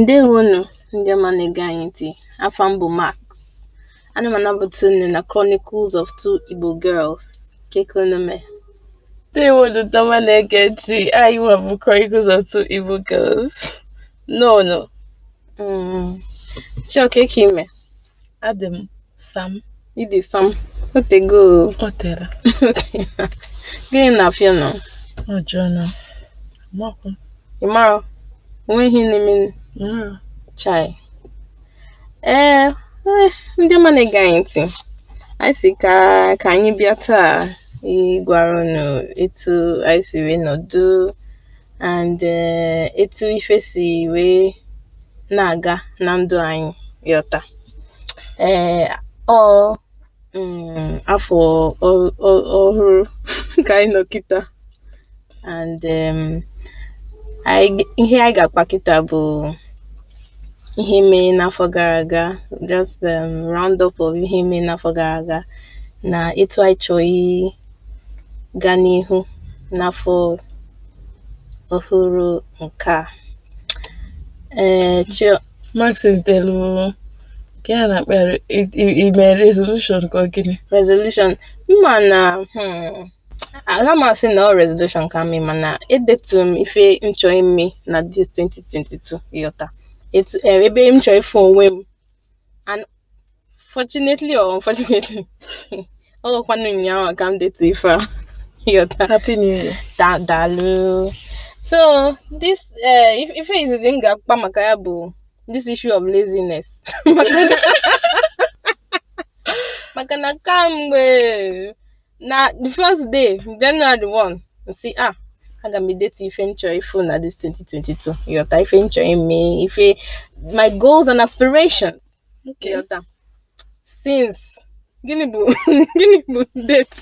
Ndewonu ndị ọma na-ege anyị ntị, afọ mbụ Max, ana m anabata unu na Chronicles of Two Igbo Girls, Kekeonome. Ndewo ndị ọma na-ege ntị, anyị nwa bụ Chronicles of Two Igbo Girls, no mm. Chioke ka e ime? Adị m Sam. Ịdị Sam? Otego. O tere. Gịnị na-afịa nọ? Ọjọọ nọ. Ị mara? Enweghị n'ime Mm, chai! Ee, eh, eh, ndị ọma na-ege anyị ntị, anyị si ka ka anyị bịa taa ịgwara unu etu anyị si wee nọdụ and eh, etu ife si wee na-aga na ndụ anyị yọta. Ee, ọ mm, afọ ọ- ọhụrụ ka anyị nọ kịta and anyị ihe anyị ga-akpa kịta bụ ihe mere n'afọ gara aga just um, round up of ihe mere n'afọ gara aga na ịtụ anyị chọghị gaa n'ihu n'afọ ọhụrụ nke a ee eh, Max telu ka a na-akpa resolution ka ọ gịnị resolution mma na hmm. aga m asị na ọ resolution ka mee mana edetu m ife m chọọ ime na dis 2022 ịghọta etu e, ebe m chọọ ịfụ onwe m and fortunately or unfortunately ọ ghọkwanụ ụnyaahụ ka m detu ife a ịghọta happy new year da so this e, ife izizi m ga-akpa maka ya bụ this issue of laziness maka na kamgbe na the first day January 1 see ah aga m edetu ife m chọrọ na this 2022 Yota ife m chọrọ ime ife my goals and aspirations okay. yọta since gịnị bu gịnị date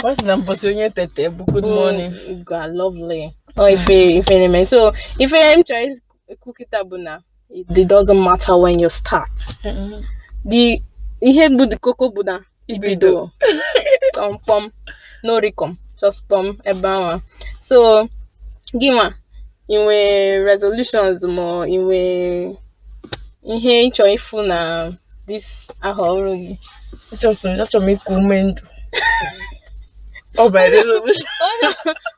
First sị na mbosi onye tete bụ good morning god lovely oh ife ife so ife m chọrọ ikwu kịta bụ na it doesn't matter when you start the ihe bụ the koko bụ na ibido um, kpọm n'oricom just kpọm ebe ahụ so gịnwa inwe resolutions ma inwe ihe ịchọ ịfụ na this aha ọrụ gị achọrọ m ịkụ ume ndụ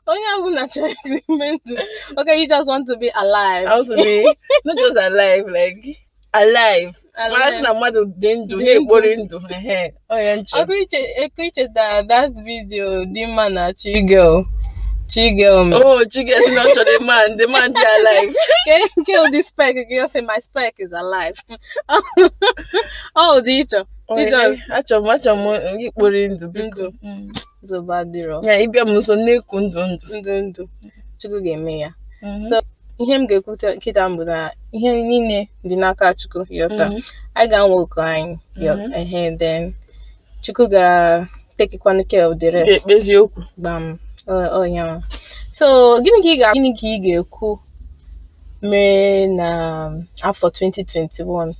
onye ọbụla chọrọ ịkụ ume ndụ okay you just want to be alive I want to be not just alive like alive marasị na mmadụ dị ndụ na-ekpori ndụ ọkụ ichetara that video dị mma na chigel chigel me oh chigel si na ọ chọrọ man the man dị alive kill the spec gị say my spec is alive ọ dị ịchọ na-achọ m achọ m ikpori ndụ biko mm. Zụba dịrọ ya ịbịa m nso na-eku ndụ ndụ ndụ ndụ chukwu ga-eme ya mhm. so ihe m ga-ekwu nkịta m bụ na ihe niile dị n'aka Chukwu yọta anyị mhm. ga-anwa oku anyị mhm. then Chukwu ga-tekikwanụ care of rest ekpezi okwu gbam ọnya so gịnị ka ị ga gịnị ka ị ga-ekwu mere na afọ 2021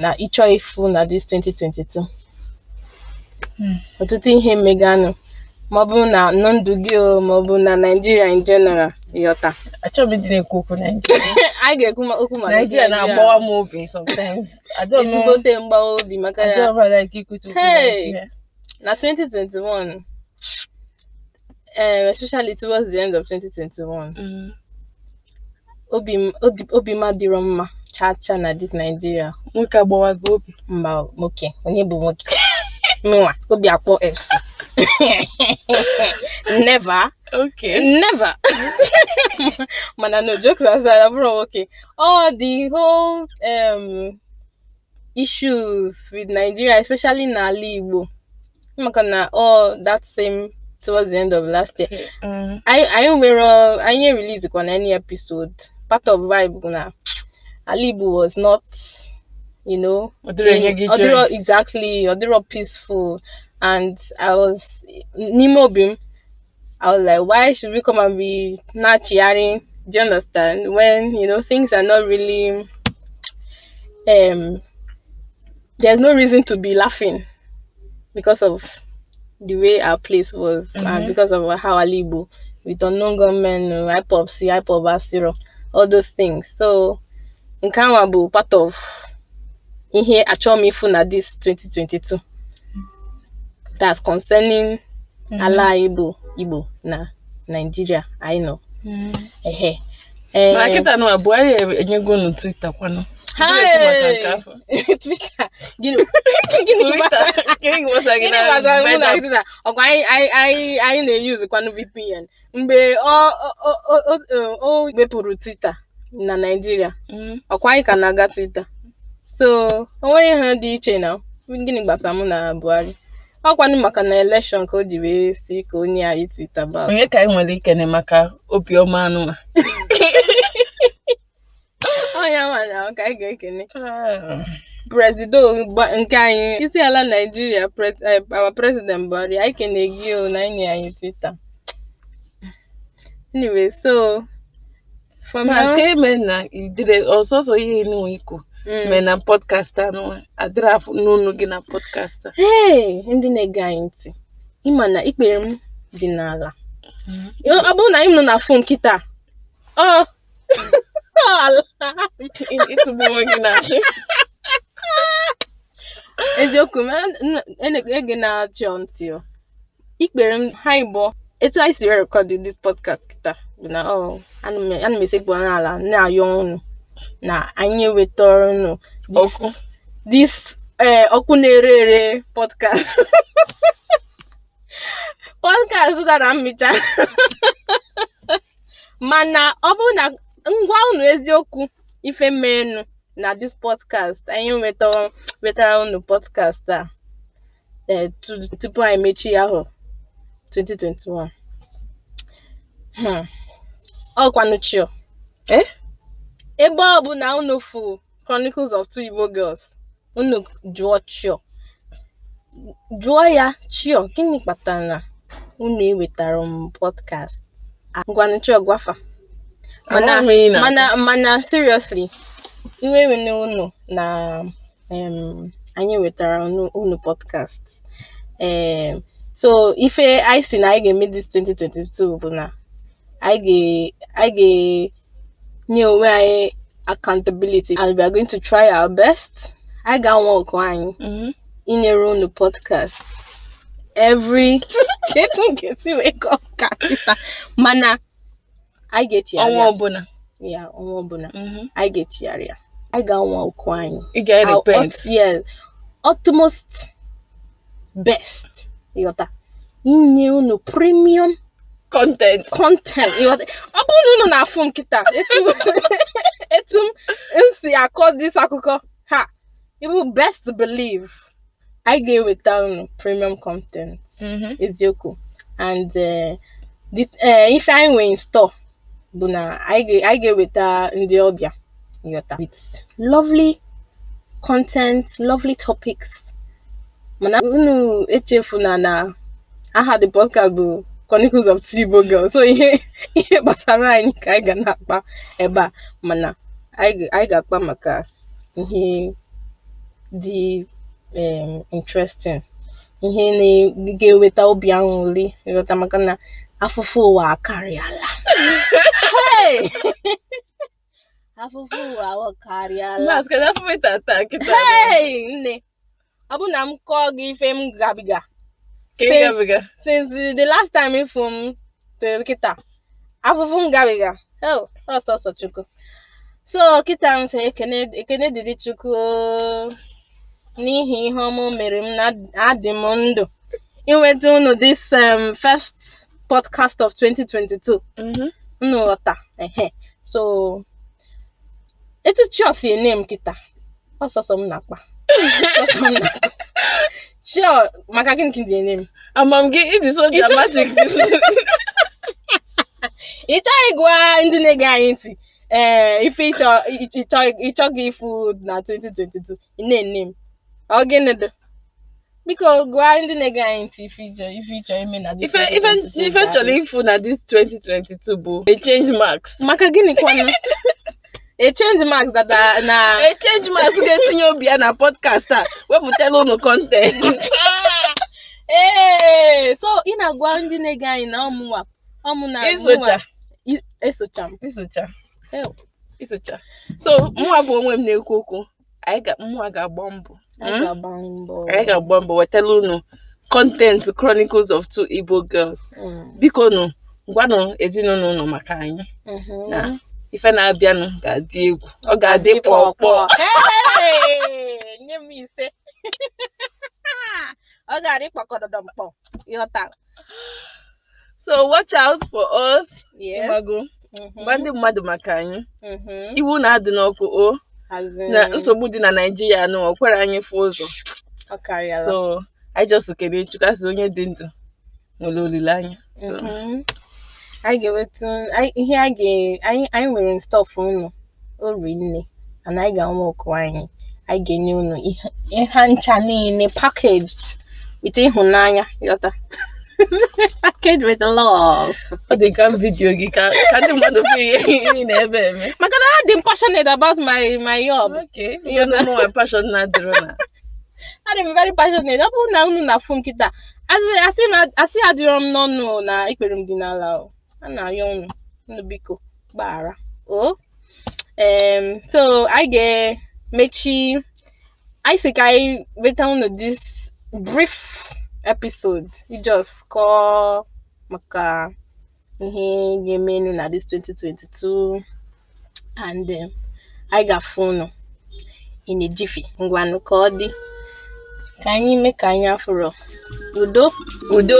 na ịchọ ịfụ na this 2022 hmm. ọtụtụ ihe meganụ maọbụ na ndụ gị maọbụ na Naịjirịa in general ịghọta achọghị m na-ekwu okwu Naijiria anyị ga-ekwu okwu ma Naijiria na-agbawa m obi sometimes ezigbote mgbawa obi maka ya na 2021 um, especially towards the end of 2021 mm. obi ma dịrọ mma chaa chaa na dis Naijiria nwoke agbawa gị obi mba nwoke onye bụ nwoke nwa obi akpọ fc never okay never mana no jokes aside abụrụ nwoke all the whole um, issues with nigeria especially n'ala igbo maka na all that same towards the end of last year anyị nwere anyị release na any episode part of vibe na ala igbo was not you know ọdịrọ exactly ọdịrọ peaceful and i was n'ime obi m i was like why should we come and be na-achịgharị do you understand when you know things are not really um there's no reason to be laughing because of the way our place was mm-hmm. and because of how Alibu with unknown government, IPOP, C, IPOP, all those things. So, Nkanwa bụ part of ihe achọmifu m ịfụ na this 2022 that's concerning mhm. ala anyị bụ Igbo na Naịjirịa anyị nọ ehe eh, e eh, na na Buhari gịnị anyị na-eyuzu VPN mgbe o wepụrụ Twitter na Naijiria, mhm. ọkwa anyị ka na-aga Twitter So o nwere ihe dị iche na gịnị gbasara mụ na Buhari ọkwanụ maka na elekshọn ka o ji wee si ka onye anyị twita ba onye ka anyị nwere ikene maka obiọma anụma onye nwanyị ahụ ka anyị ga-ekene ah. prezido nke anyị isi ala naijiria eh, our president Buhari anyị kene gị o na anyị anyị twita anyway so from na ọsọsọ ihe n'ikwu Mm. mee na anụ adịrị afọ n'ụlọ gị na pọdkastị ee ndị na-ege anyị ntị ịma na ikpere m dị n'ala mm-hmm. ọ bụrụ na anyị nọ na fon kịta ọ ịtụgbu gị na eziokwu m ege e na-achọ ntị ikpere m ha ịbụọ etu anyị si rekọdị dis pọdkast kịta bụ na ana m esekpu n'ala na-ayọ ọnụ na anyị wetara unu ọkụ this ọkụ eh, na-ere ere podcast podcast dara mmicha mana ọ bụ na ngwa ụnụ eziokwu ife merenụ na this podcast anyị wetara ụnụ podcast a eh, tupu anyị mechie ahụ 2021 ọkwanụ chio eh Ebe na unu fụrụ Chronicles of Two Igbo Girls, unu jụọ Chio, jụọ ya Chio gịnị kpatara na unu ewetaro m podcast a ngwanụ Chio gwafa mana mana mana seriously iwe wene unu na um, anyị wetara unu podcast um, so ife anyị si na anyị ga-eme this 2022 bụ na anyị ga ga nye onwe anyị accountability and we are going to try our best I ga-anwa ọkụ anyị inyere unu podcast every ka etu m ga wee kọọ ka kịta mana anyị ga-echigharị ọnwa ọbụla ya ọnwa ọbụla anyị ga-echigharị ya anyị ga-anwa ọkụ anyị ị ga-repent yes utmost best ịghọta inye unu premium content content ọ bụrụ na unu na-afụ nkịta etu m si akọ dis akụkọ ha ibu best believe anyị ga weta unu premium content mm-hmm. eziokwu and eh, eh, ife anyị nwee in store bụ na anyị ga-eweta ndị ọbịa yota with lovely content lovely topics mana unu echefuna na aha the podcast bụ Chronicles of Two Igbo Girls so ihe ihe gbasara anyị ka anyị ga na-akpa ebe a mana anyị ga-akpa maka ihe dị um interesting ihe ga-eweta obi aṅụrị ịghọta maka na afụfụ ụwa akarịala afụfụ ụwa akarịala nne ọ bụ na m kọọ gị ife m gabiga Since, since the last time ifu m tụrụ kịta afụfụ m gabiga ọsọsọ oh, chukwu so kịta m sị ekene dịrị chukwu oh. n'ihi ihe ọmụ mere m na adị m ndụ inweta unu this um, first podcast of 2022 mm-hmm. unu ghọta ehe so etu chi si ene m kịta ọsọsọ na ọsọsọ m na-akpa Sure, maka gịnị ka ị ji enye m? Amam gị ịdị so dramatic. Ị chọghị ịgwa ndị na-ege anyị ntị ee eh, ife ịchọ gị ịfụ na 2022 ị na-ene m ọ gịnị dị biko gwa ndị na-ege anyị ntị ife ịchọ ife ịchọ ime na ife ife chọrọ ịfụ na this 2022 bụ a change marks maka gịnị kwanụ e change marks that are na e change marks ga-etinye obi ya na podkast a wepụtala ụnụ kọntent so ị na-agwa ndị na-ege anyị na ọmụnwa ọmụna isocha esocha m isocha so mụnwa bụ onwe m na-ekwu okwu anyị mụnwa hmm? ga-agba mbọ anyị ga-agba mbọ wetala ụnụ kọntentị chronicles of two igbo girls hmm. biko nụ gwanụ ezinụlọ ụnụ maka anyị mhm. ife na-abịanụ ga-adị egwu ọ ga-adị kpọkpọọ nye m ise ọ ga-adị kpọkọdọdọ mkpọ ịghọtara so watch out for us mmadụ. Mm-hmm. mgba ndị mmadụ maka anyị mm-hmm. iwu na-adị n'ọkụ o na nsogbu dị na Naịjirịa nụ ọ anyị fụ ụzọ so anyị just kene asị onye dị ndụ nwere olileanya mm-hmm. anyị ga-eweta ihe a ga anyị anyị nwere stọf unu ori nne and anyị ga-anwe ọkụ anyị anyị ga-enye unu ihe ncha niile packaged with ịhụnanya yọta packaged with love. ọ dị ka vidiyo gị ka ka ndị mmadụ fụ ihe ị ebe eme maka na ha dị passionate about my my job okay you know my passion na dịrị na adị m very passionate ọ bụrụ na unu na-afụ nkịta asị adịrọ m n'ọnụ na ikpere m dị n'ala o a na ayọ unu biko gbaghara o oh, um so anyị ga-emechi anyị si ka anyị weta unu this brief episode just kọọ maka ihe ga emenu na this 2022 and anyị um, ga-afụ unu in a jiffy ngwanụ ka ọ dị ka anyị mee ka anyị afụrụ udo udo